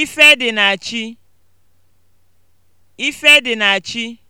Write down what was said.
Ife dị na chi. Ife dị na chi.